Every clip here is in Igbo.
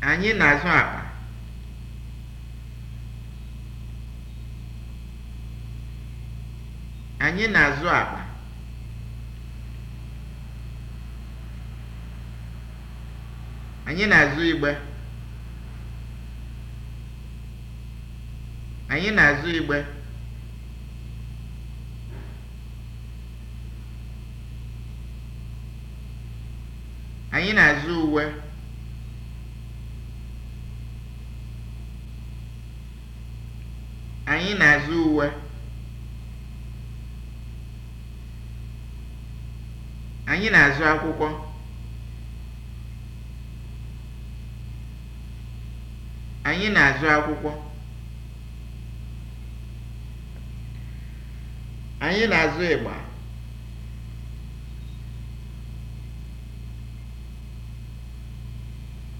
Anyị na-azụ akpa. Anyị na-azụ akpa. Anyị na-azụ igbe. Anyị na-azụ igbe. Anyị na-azụ uwe. Anyị na-azụ uwe. Anyị na-azụ akwụkwọ. Anyị na-azụ akwụkwọ. Anyị na-azụ ịgba.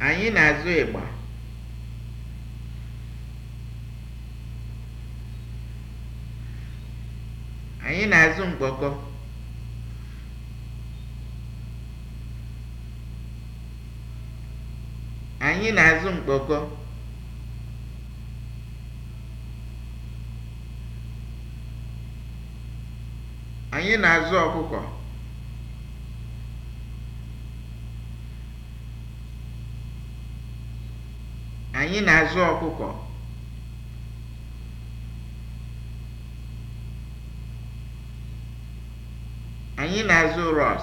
Anyị na-azụ ịgba. Anyị na-azụ mkpọkọ. Anyị na-azụ mkpọkọ. Anyị na-azụ ọkụkọ. Anyị na-azụ ọkụkọ. Anyị na-azụ rọs.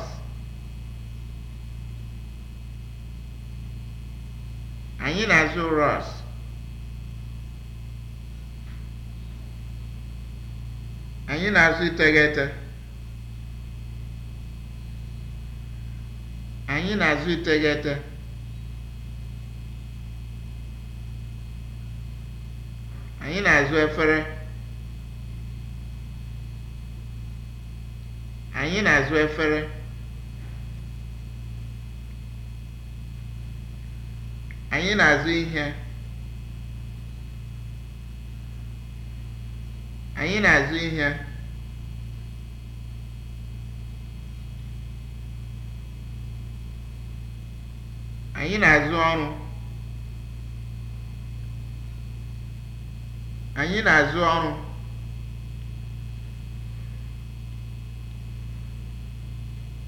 Anyị na-azụ rọs. Anyị na-azụ iteghete. Anyị na-azụ iteghete. Anyị na-azụ efere. Anyị na-azụ efere. Anyị na-azụ ihe. Anyị na-azụ ihe. Anyị na-azụ ọrụ. Anyị na-azụ ọrụ.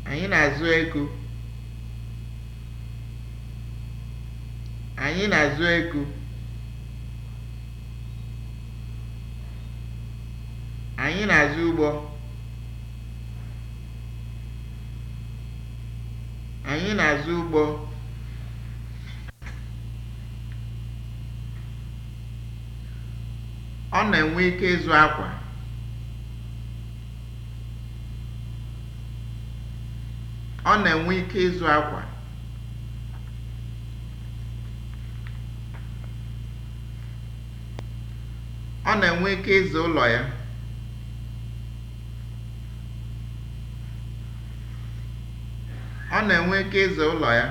Anyị na-azụ ego. Anyị na-azụ ego. Anyị na-azụ ụgbọ. Anyị na-azụ ụgbọ. Ọ na-enwe ike ịzụ akwa. ike ịzụ akwa ọ na-enwe ike ịzụ ụlọ ya ọ na-enwe ike ịzụ ụlọ ya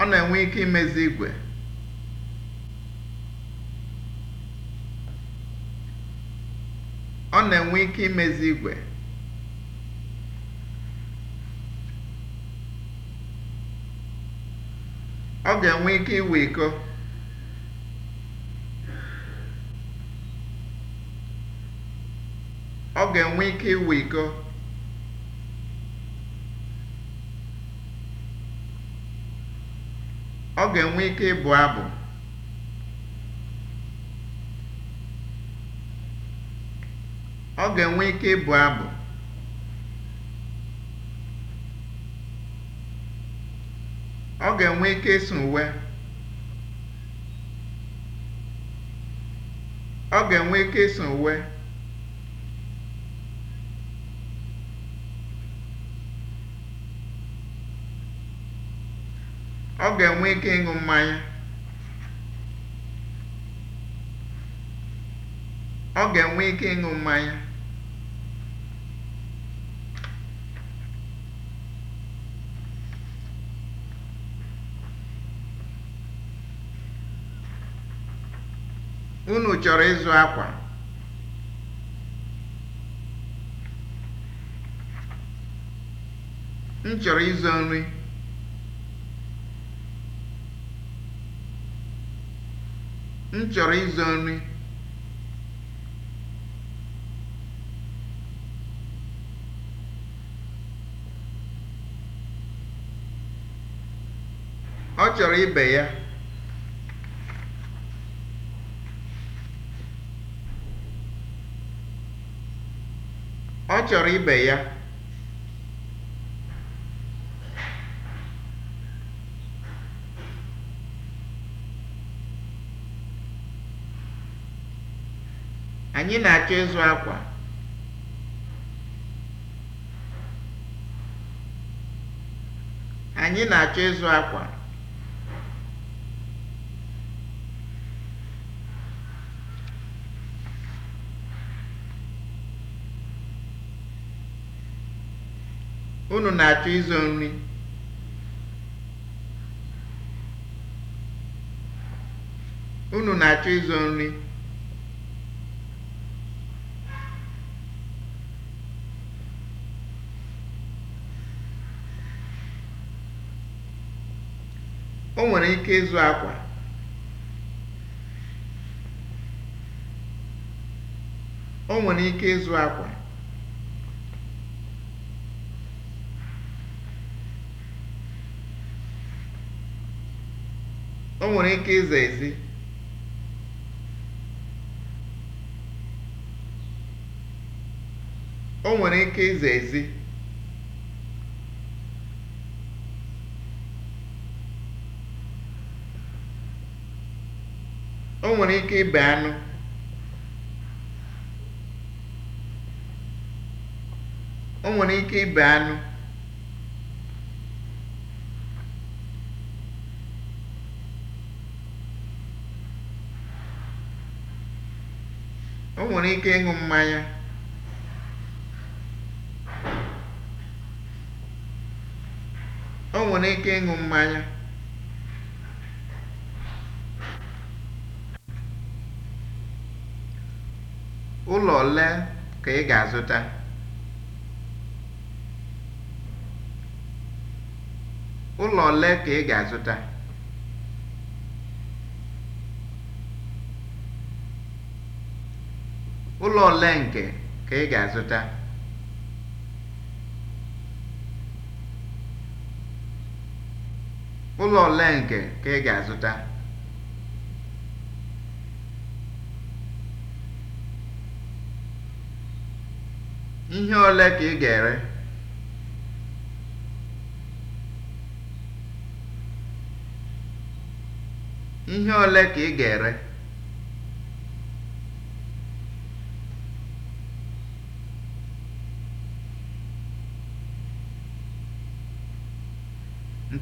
ọ na-enwe ike imezi igwe na-enwe ike imezi igwe ọ ga-enwe ike iwe iko ọ ga-enwe ike iwe iko ọ ga-enwe ike ịbụ abụ ọ ga-enwe ike ịbụ abụ ọ ga-enwe ike ịsụ uwe ọ ga-enwe ike ịsụ uwe ọ ga-enwe ike ịṅụ mmanya ọ ga-enwe ike ịṅụ mmanya unu chọrọ ịzụ akwa m chọrọ ịzụ nri m chọrọ ịzụ nri ọ chọrọ ibe ya ọ oh, chọrọ ibe ya anyị na-achọ ịzụ akwa anyị na-achọ ịzụ akwa Unu na-achọ ịzụ nri? Unu na-achọ ịzụ nri? O nwere ike ịzụ akwa. O nwere ike ịzụ akwa. o nwere ike ịza ezi o nwere ike ịza ezi o ike ibe anụ nwere ike ịṅụ mmanya o nwere ike ịṅụ mmanya ụlọ ole ụlọ ole ka ị ga-azụta ụlọ ole nke ka ị ga-azụta ihe ole ka ị ga ihe ole ka ị ga-ere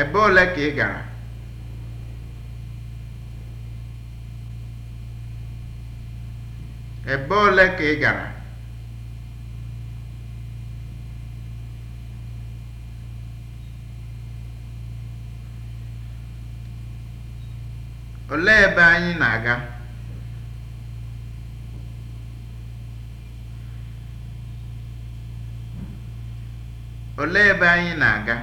Ebe ole ka ị gara? Ebe ole ka ị gara? Olee ebe anyị na-aga? Olee ebe anyị na-aga?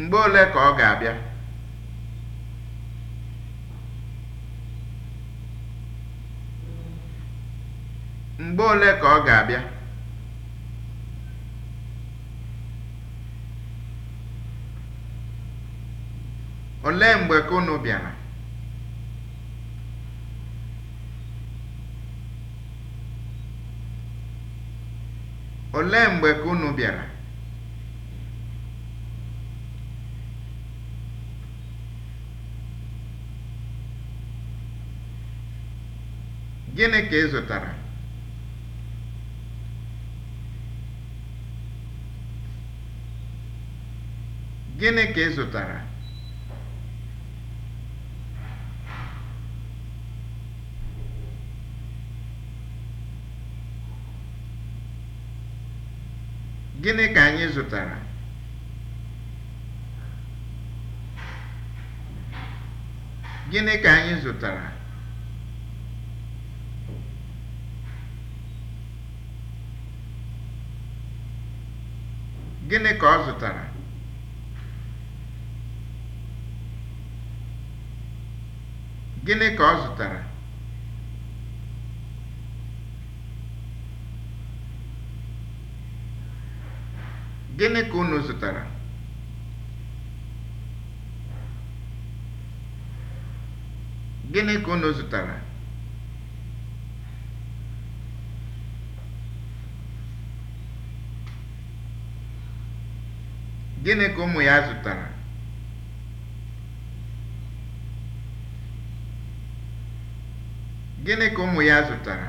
Mgbe ole ka ọ ga-abịa? Mgbe ole ka ọ ga-abịa? Olee mgbe ka unu bịara? Olee mgbe ka unu bịara? Gịnị ka ị zụtara? Gịnị ka ị zụtara? Gịnị ka anyị zụtara? Gịnị ka anyị zụtara? Gịnị ka ọ zụtara? Gịnị ka ọ zụtara? Gịnị ka unu zụtara? Gịnị ka unu zụtara? Gịnị ka ụmụ ya zụtara? Gịnị ka ụmụ ya zụtara?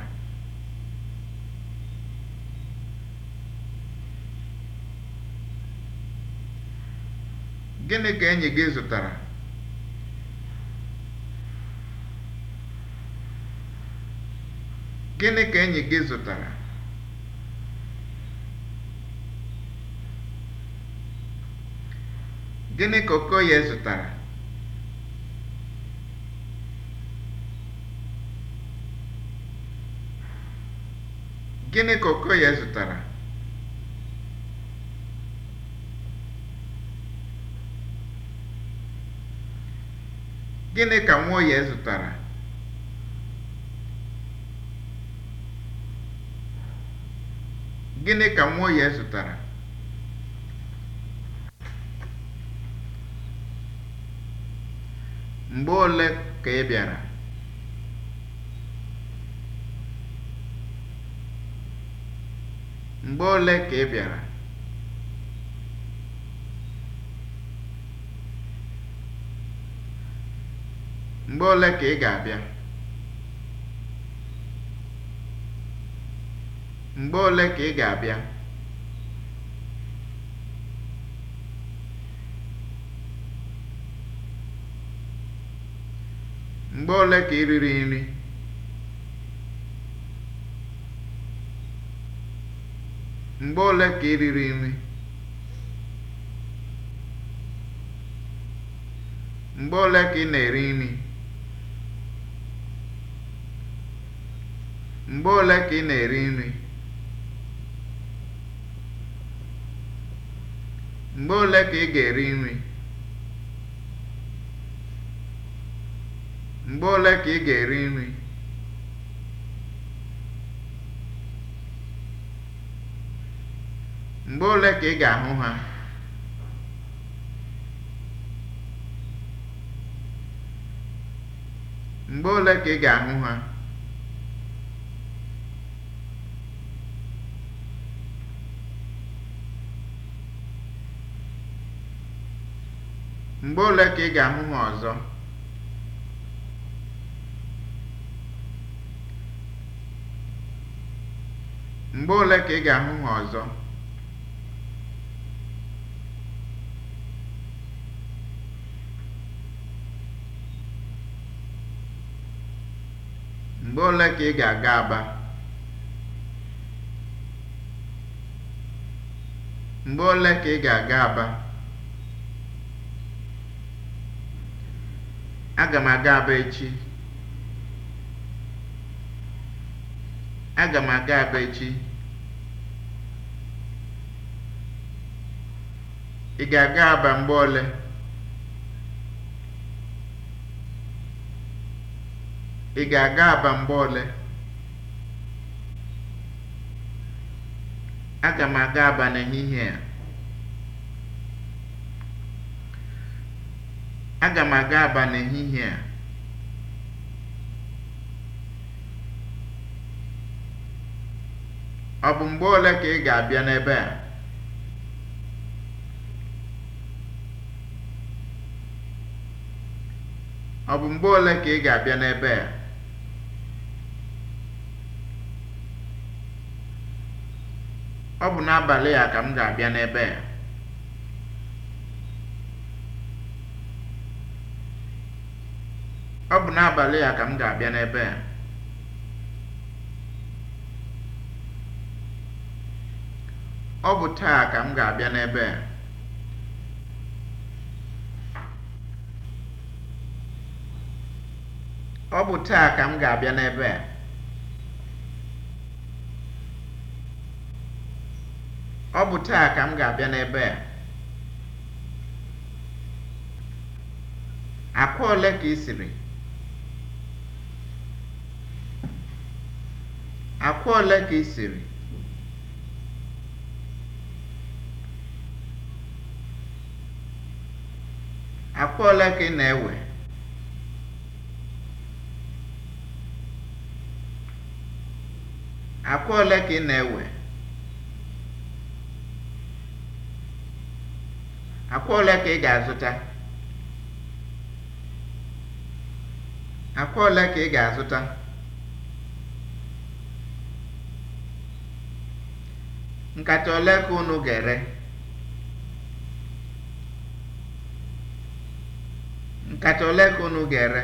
Gịnị ka enyi gị zụtara? Gịnị ka enyi gị zụtara? Gịnị ka Okoye zụtara? Gịnị ka Okoye zụtara? Gịnị ka Nwoye zụtara? Gịnị ka Nwoye zụtara? Mgbe ole ka ị bịara? Mgbe ole ka ị bịara? Mgbe ole ka ị ga-abịa? Mgbe ole ka ị ga-abịa? Mgbe ole ka ị riri nri? Mgbe ole ka ị riri nri? Mgbe ole ka ị na-eri nri? Mgbe ole ka ị na-eri nri? Mgbe ole ka ị ga-eri nri? Mgbe ole ka ị ga-eri nri? Mgbe ole ka ị ga-ahụ ha? Mgbe ole ka ị ga-ahụ ha? Mgbe ole ka ị ga-ahụ ha ọzọ? Mgbe ole ka ị ga-ahụ ha ọzọ? Mgbe ole ka ị ga-aga Aba? Mgbe ole ka ị ga-aga Aba? Aga m aga Aba echi. Aga m aga Aba echi. Ị ga-aga Aba mgbe ole? aga Aba mgbe ole? Aga m aga Aba n'ehihie a. Aga m aga Aba n'ehihie a. Ọ bụ mgbe ole ka ị ga-abịa n'ebe a? ọ bụ mgbe ole ka ị ga-abịa n'ebe a ọ bụ n'abalị a ka m ga-abịa n'ebe a ọ bụ n'abalị a ka m ga-abịa n'ebe a ọ bụ taa ka m ga-abịa n'ebe a ọ bụ taa ka m ga-abịa n'ebe a ọ bụ taa ka m ga-abịa n'ebe a akwa ole ka ị siri akwa ole ka ị siri akwa ole ka ị na-ewe Akwa ole ka ị na-ewe? Akwa ole ka ị ga-azụta? Akwa ole ka ị ga-azụta? Nkata ole ka unu ga-ere? Nkata ole ka unu ga-ere?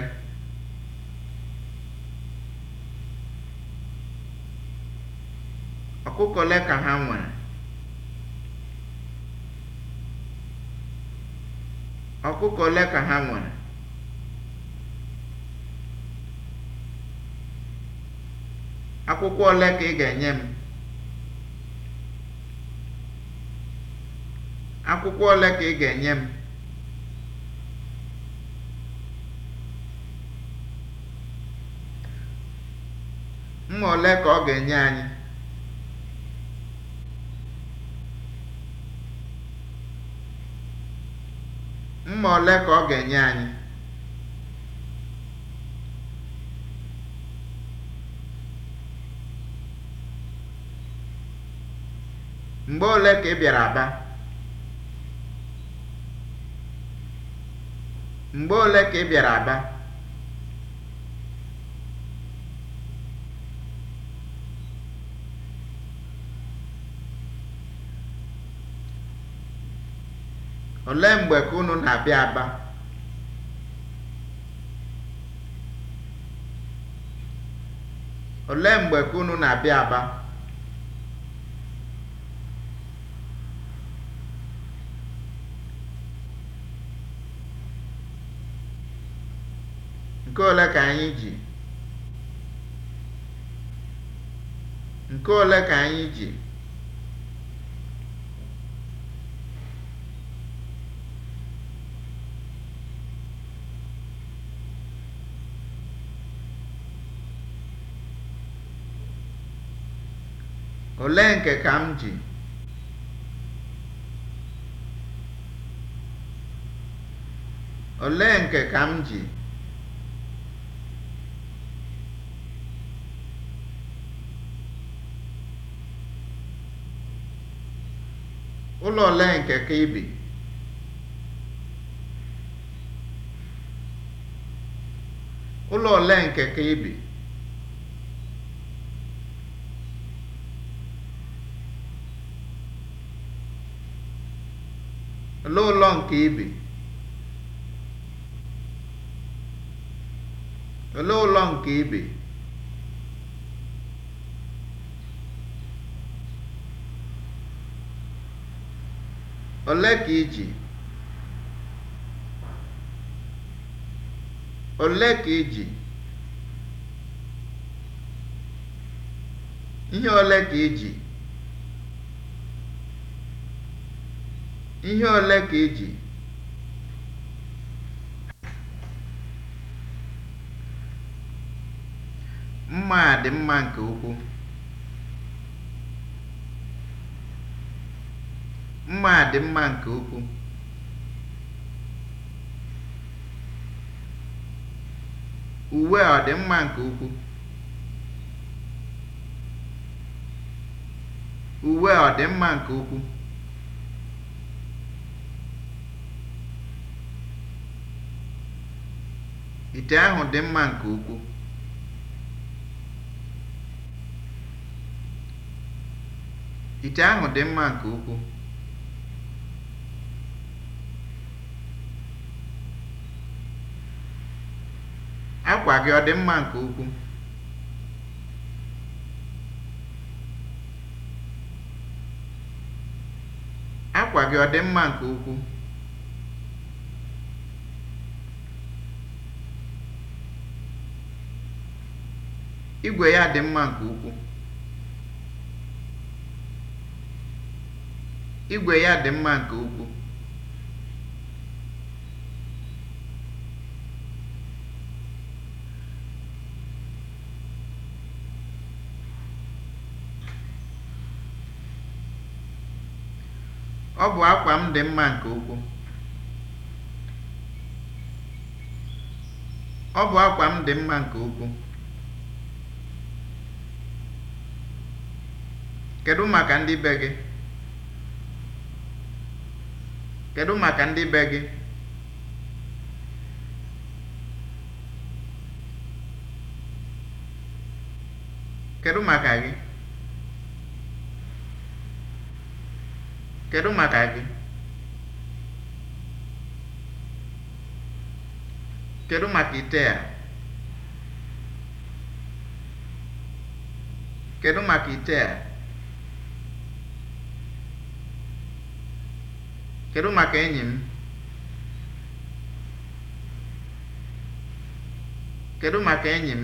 ọkụkọ ole ka ha nwere ọkụkọ ole ka ha nwere akwụkwọ ole ka ị ga-enye m akwụkwọ ole ka ị ga-enye m mma ole ka ọ ga-enye anyị mma ole ka ọ ga-enye anyị mgbe ole ka ị bịara aba ka ị bịara aba olee mgbe ka na-abịa aba abịa nke ole ka anyị nke ole ka anyị ji Olee nke ka m ji? Olee nke m ji? Ụlọ ole nke ka Olee ụlọ nke ị Olee ụlọ nke ị bi? ka ị ji? Ole ka ị ji? Ihe ole ka ị ji? Ihe ole ka e ji? Mma a dị mma nke ukwuu. Mma a dị mma nke ukwuu. Uwe ọ dị mma nke ukwuu? Uwe ọ dị mma nke ukwuu? Ite ahụ dị mma nke ukwuu. Ite ahụ dị mma nke ukwuu. Akwa gị ọ dị mma nke ukwuu? Akwa gị ọ dị mma nke ukwuu? Igwe ya dị mma nke ukwuu. Igwe ya dị mma nke ukwuu. Ọ bụ akwa m dị mma nke ukwuu. Ọ bụ akwa m dị mma nke ukwuu. kedụ maka ndị be gị kedụ maka ndị be gị kedụ maka gị kedụ maka gị kedụ maka ite a kedụ maka ite a Kedu maka enyi m? Kedu maka enyi m?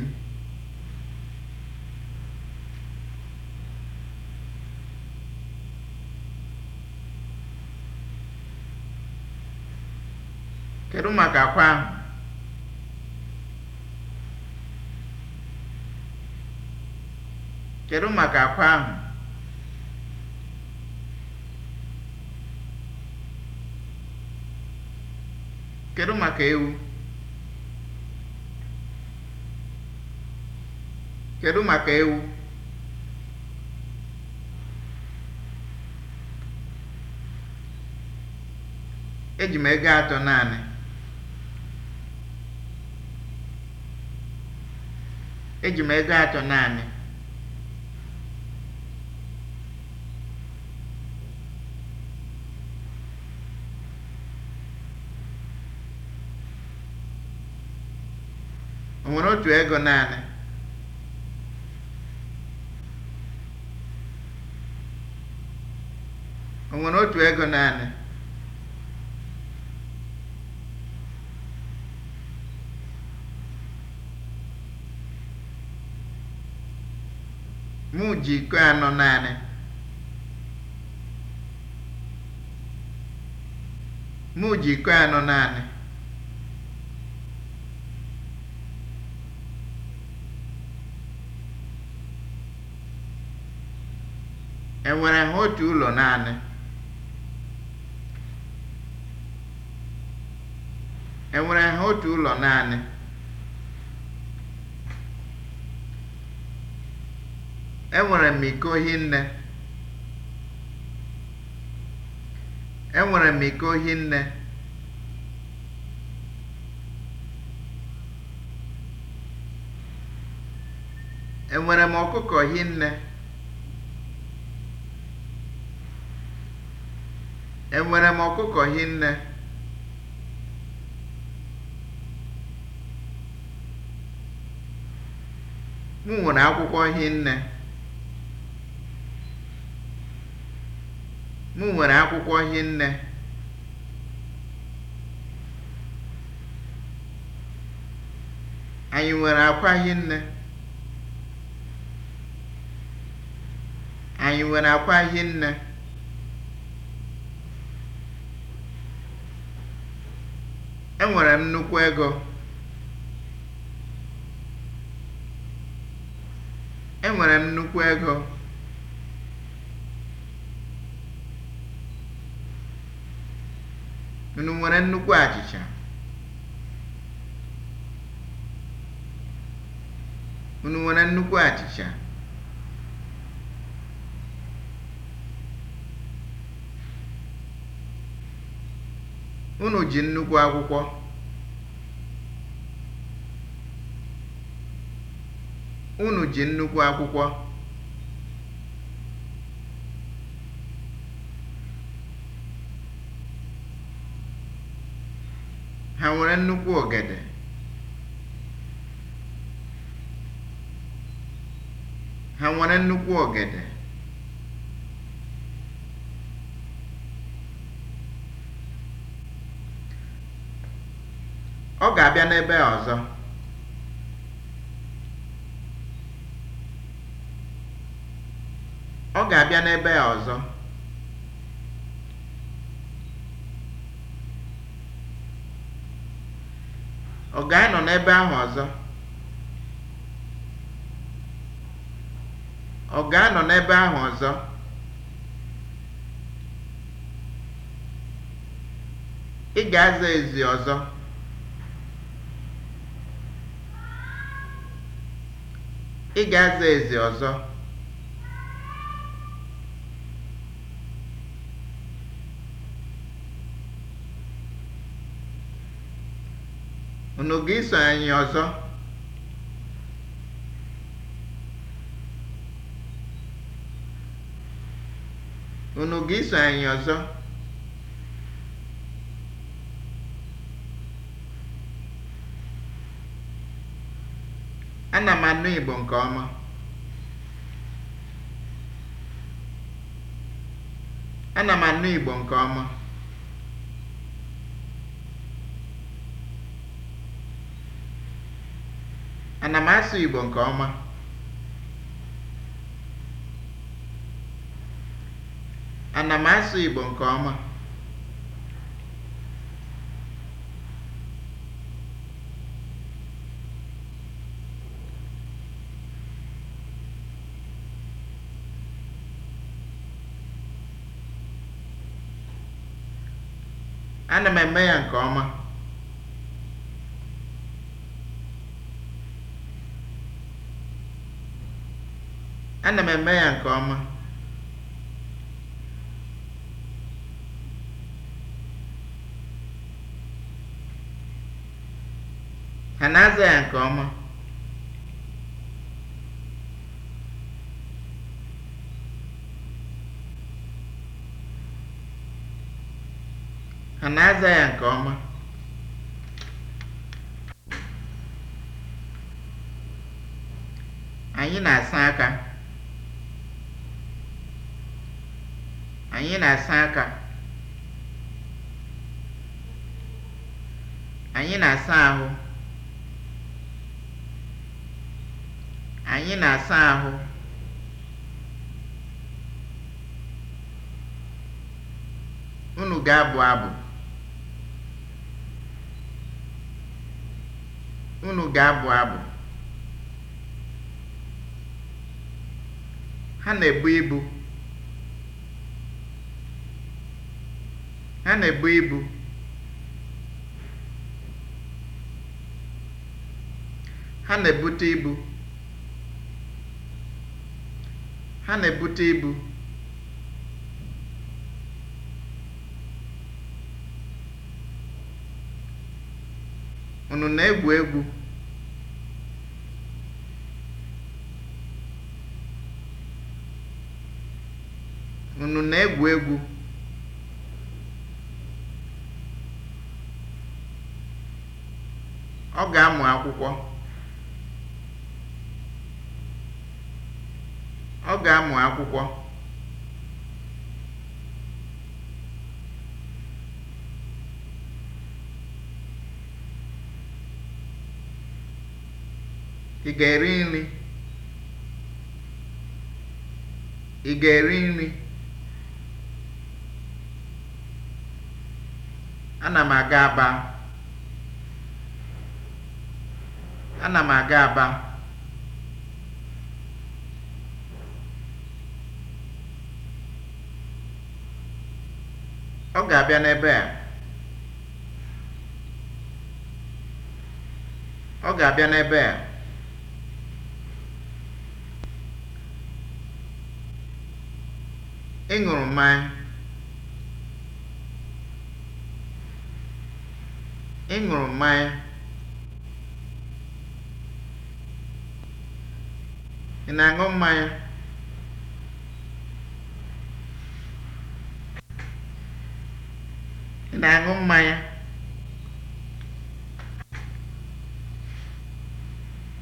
Kedu maka akwa Kedu maka akwa ahụ? Kedu maka ewu? Kedu maka Eji m ego atọ naanị. Eji naanị. nwere otu ego naanị o otu ego naanị mụ ji iko anọ naanị anọ naanị enwere ha otu ụlọ naanị enwere ha otu ụlọ naanị enwere m iko hinne nne? m iko hinne enwere m ọkụkọ hinne enwere m ọkụkọ hinne m nwere akwụkwọ hinne m nwere akwụkwọ hinne anyị nwere akwa hinne anyị nwere akwa hinne Enwere m nnukwu ego. Enwere m nnukwu ego. Unu nwere nnukwu achịcha? Unu nwere nnukwu achịcha? Unu ji nnukwu akwụkwọ. Unu Ha nwere nnukwu ogede. Ha nwere nnukwu ogede. abịa n'ebe ọzọ ọ ga-abịa n'ebe ọzọ ọ ga-anọ n'ebe ahụ ọzọ ọ ga-anọ n'ebe ahụ ọzọ ị ga-aza ezi ọzọ Ị ga-aza ezi ọzọ! Unu ga-eso anyị ọzọ? Unu ga-eso anyị ọzọ? Ana m anụ Igbo nke ọma. Ana m anụ Igbo nke ọma. Ana m asụ Igbo nke ọma. Ana m asụ Igbo nke ọma. ana m eme ya nke ọma ana m eme ya nke ọma ha aza ya nke ọma Ha na-aza ya nke ọma? Anyị na-asa aka. Anyị na-asa aka. Anyị na-asa ahụ. Anyị na-asa ahụ. Unu ga-abụ abụ. Unu ga-abụ abụ. Ha na-ebu ibu. Ha na-ebu ibu. Ha na-ebute ibu. Ha na-ebute ibu. Unu na-egwu egwu? Unu na-egwu egwu? Ọ ga-amụ akwụkwọ. Ọ ga-amụ akwụkwọ. Ị ga-eri nri? Ị ga-eri nri? Ana m aga Aba. Ana Ọ ga-abịa n'ebe a. Ọ ga-abịa n'ebe a. Ị mmanya, ị ṅụrụ mmanya, ị na-aṅụ mmanya? ị na-aṅụ mmanya?